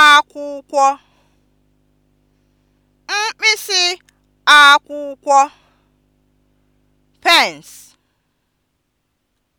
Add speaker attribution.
Speaker 1: akwụkwọ mkpịsị akwụkwọ pence